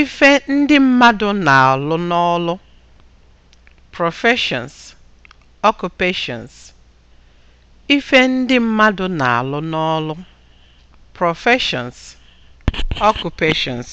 Ife ndị mmadụ na-alụ n'ọlụ (professions, occupations). Ife ndị mmadụ na-alụ n'ọlụ (professions, occupations)